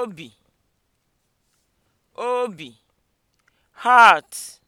obi obi heart